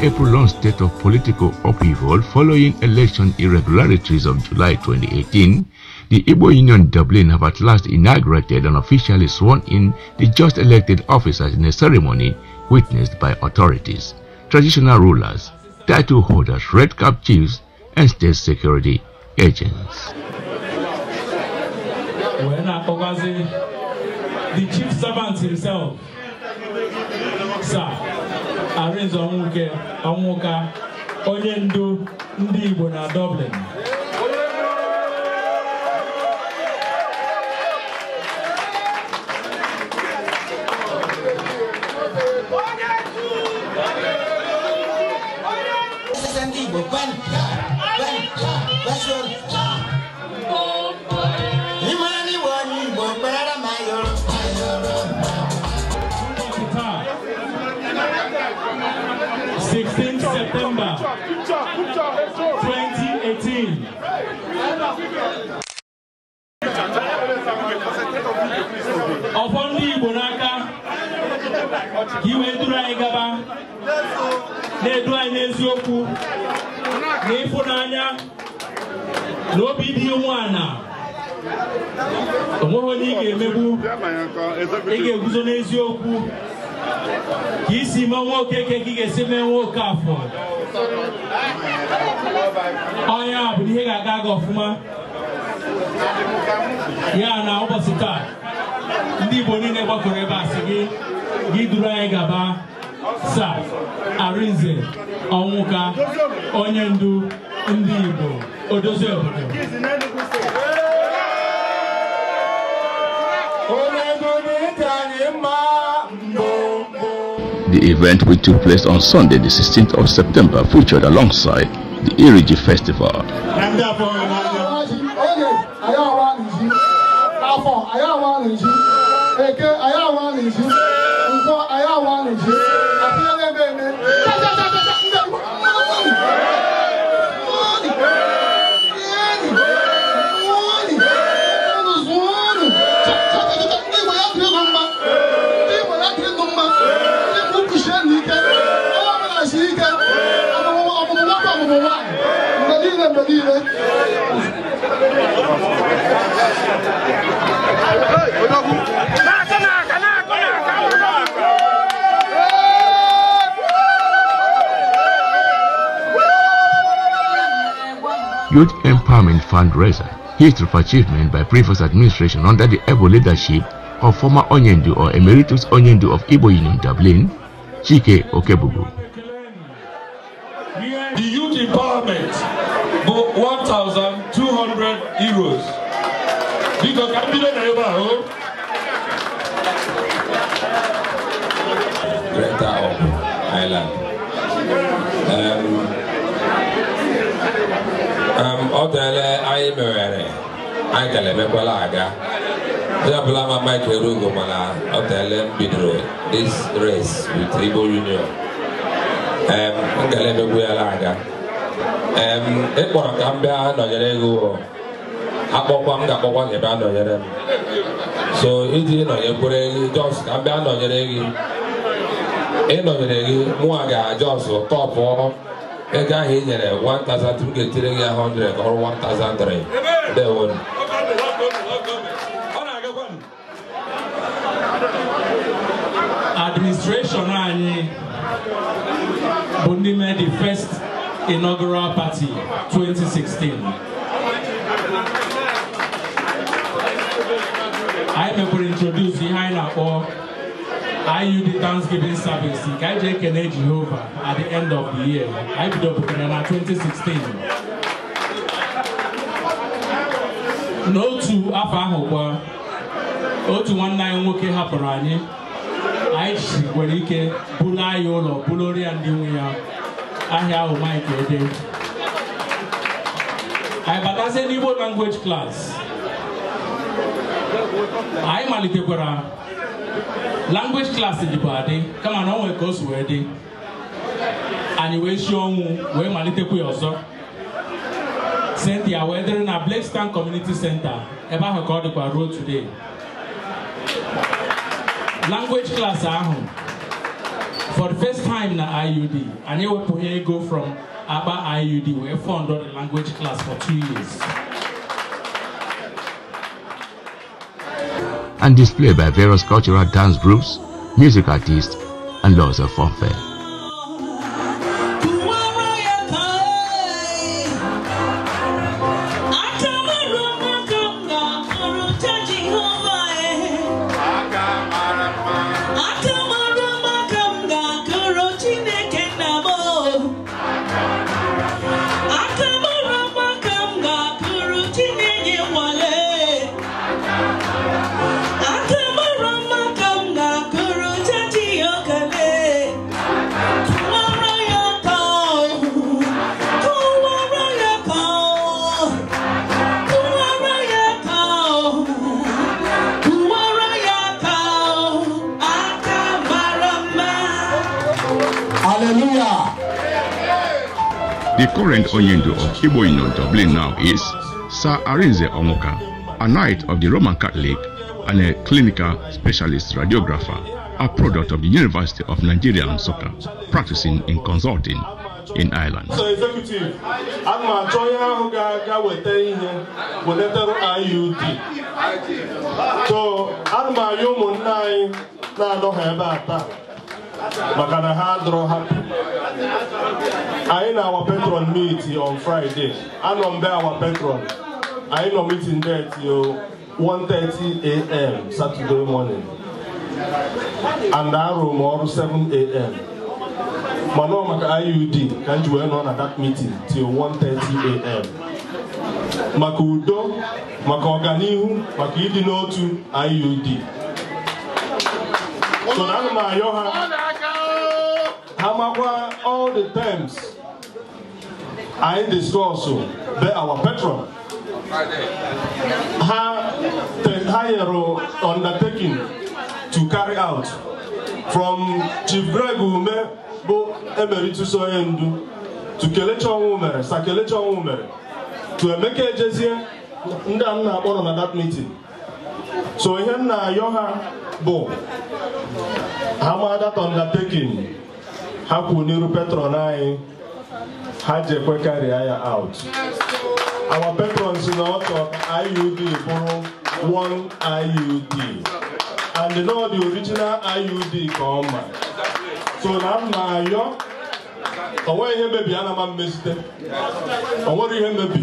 April-long state of political upheaval following election irregularities of July 2018, the Igbo Union Dublin have at last inaugurated and officially sworn in the just elected officers in a ceremony witnessed by authorities, traditional rulers, title holders, red cap chiefs, and state security agents. The chief servant himself, sir, Arinze Ọnwụka onye ndu ndị Igbo na Dublin ndị Igbo ọfọ ndị Igbo n'aka ka i duru anyị gaba na-edu anyị n'eziokwu na ịfụnanya na obi dị umeala onweghị onye ị ga-emegbu ị ga-eguzo n'eziokwu ka isi mee nwoke ka ị ga-esi mee nwoke afọ ɔnyɛ abudihɛ gagaga ɔfuma yana ụbọchị taa ndị igbo niile gbakọrọ ebe a sị gị gị duru anyị gaba sa arinze ọnwụka onye ndu ndị The event, which took place on Sunday, the 16th of September, featured alongside The Iriji Festival. Youth Empowerment Fundraiser, History of Achievement by Previous Administration under the able leadership of former Onyendu or Emeritus Onyendu of Igbo Union Dublin, Chike Okebugu. The youth empowerment, 1,200 euros. Because I didn't Greta of Ireland. Um, ọ anyị mewere, anyị kala emekwala aga onye ọbụla ma Mike Erugo mana ọ bịala m bidoro this race with Igbo Union m kala emekwu yala aga ị ka m bịa nọnyere gị akpọkwa m ga-akpọkwa gị bịa nọnyere m so iji nọnyekwere gị jos ka m bịa nọnyere gị ịnọnyere gị mụnwa ga-ajọs tọpụ ego ahụ ị nyere 1000 m ga-etire gị 100 ka ọrụ 1003 dewonu administration anyị bụ ndị mee the first inaugural party 2016 anyị mekwere introduce ihe anyị na-akpọ IUD Thanksgiving service nke anyị ji ekene Jehova at the end of the year I bidopụtara na 2016 n'otu afọ ahụ kwa otu nwanne anyị nwoke hapụrụ anyị anyị nwere ike buru anyị ụlọ bụlụrụ ya ndị nwe ya ahịa ahụ Mike Ede anyị batazie n'Igbo language class anyị malitekwara language class dịbụ adị kama na ọ nwere ka o si wee dị anyị wee si ọnwụ wee malitekwa ya ọzọ Cynthia wee dịrị na Blakestown Community Center ebe ahụ ka ọ dịkwa ruo today language class ahụ for the first time na IUD anyị ewepụghị ego from akpa IUD wee fund the language class for two years and displayed by various cultural dance groups, music artists, and lots of funfair. The current Oyendo of Iboino Dublin now is Sir Arinze Omoka, a knight of the Roman Catholic and a clinical specialist radiographer, a product of the University of Nigeria and Soccer, practicing in consulting in Ireland. So, maka na ha drọ hapi anyị na awa patron meet on Fraịdee. anọ mbe awa patron anyị nọ meeting there o 1:30 a.m. Saturday morning and arụ m ọrụ 7 a.m. mana ọ maka IUD ka m ji wee nọ na that meeting till 1:30 a.m. maka udo maka ọganihu maka ịdị n'otu IUD so na anụ m ayọ ha ha makwa all the times anyị discuss be our patron ha ha nyere undertaking to carry out from chief greg ume bụ emerituso onye to kelechi ọnwụ mere sa to emeke ejezie ndị a nna na that meeting so ihe m na-ayọ ha bụ ha ma that undertaking ha kwụ n'iru patron anyị ha ji ekwe karịa ya out our patrons na ọtọ iud bụrụ one iud and you know the original iud ka ọ ma so na m na-ayọ o nweghị ihe mebi ana m mmezite o nwere ihe mebi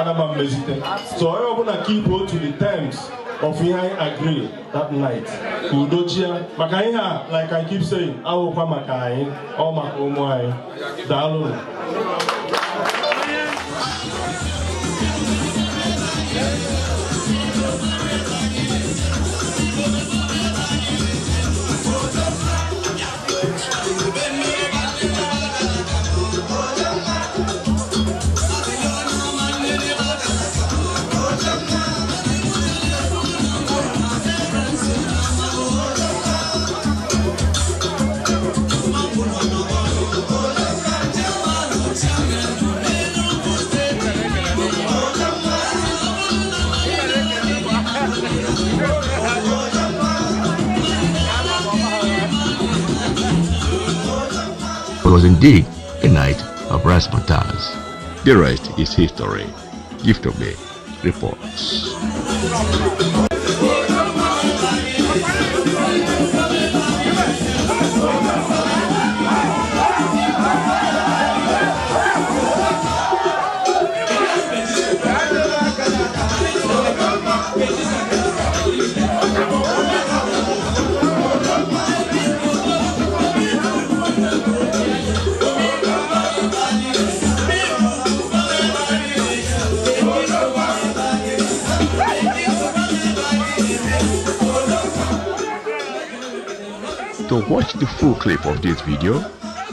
ana m mmezite so onye ọbụla keep otu the terms of ihe anyị agree that night udochie maka ihe a like I keep saying awụkwa maka anyị ọ maka ụmụ anyị daalụ Thank you. It was indeed a night of rasputas. The rest is history. Gift of me reports. To watch the full clip of this video,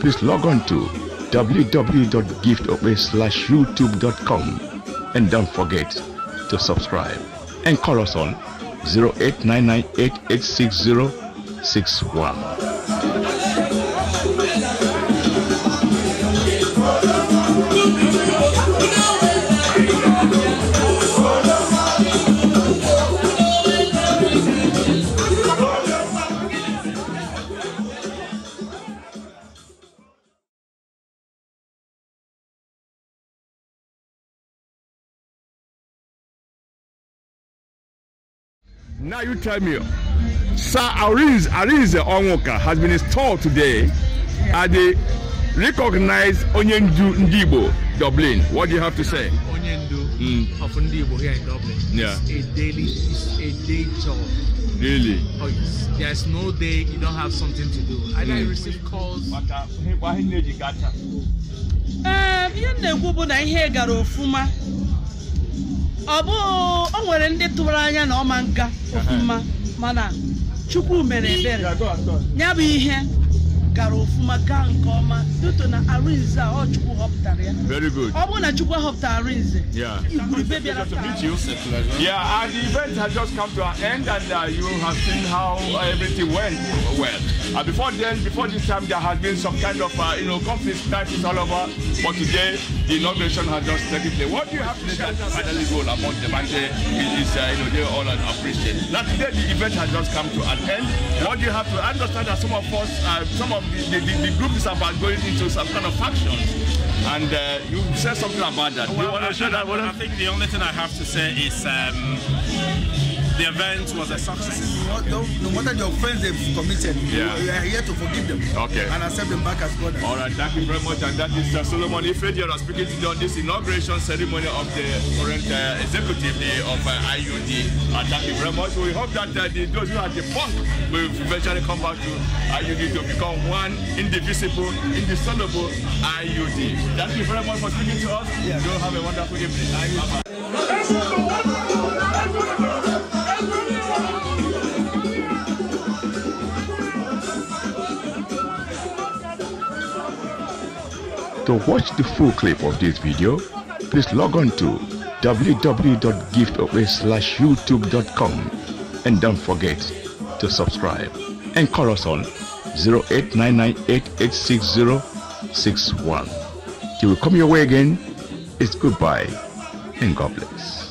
please log on to www.giftofways.youtube.com and don't forget to subscribe and call us on 0899886061. Now you tell me, Sir Ariz, Ariz Onwuka has been installed today at the recognized Onyendu Ndibo, Dublin. What do you have to say? Onyendu mm. of Ndibo here in Dublin. Yeah. It's a daily, it's a day job. Really? Oh, yes. There's no day you don't have something to do. And mm. I hmm. receive calls. Um, you know, na ihe gara ofuma. ọ bụ o nwere ndị tụrụ anya na ọma nga ofuma mana chukwu mere ebere ya bụ ihe gara ọfụma gaa nke ọma dịtụ na arinze a ọ chukwu họpụtara ya ọ bụrụ na chukwu họpụtara arinze yeah yeah and the event has just come to an end and uh, you have seen how uh, everything went well uh, before then before this time there has been some kind of uh, you know conflict crisis all over but today the inauguration has just taken place what do you have to say as finally goal among them and uh, is, uh, you know they all appreciate now today the event has just come to an end what do you have to understand that some of us uh, some of the, the, the, group is about going into some kind of factions. And uh, you said something about that. Well, I, I, I, I, think the only thing I have to say is. Um, The event was a success. What, no, no matter the offense they've committed, yeah. we are here to forgive them okay. and accept them back as brothers. All right, thank you very much. And that is uh, Solomon Ifediara speaking to on this inauguration ceremony of the current uh, executive day of uh, IUD. And thank you very much. We hope that uh, the, those who are the punk will eventually come back to IUD to become one indivisible, indissoluble IUD. Thank you very much for speaking to us. Yeah. You have a wonderful evening. Bye-bye. To watch the full clip of this video, please log on to www.giftawayyoutube.com and don't forget to subscribe and call us on 0899886061. Till we come your way again, it's goodbye and God bless.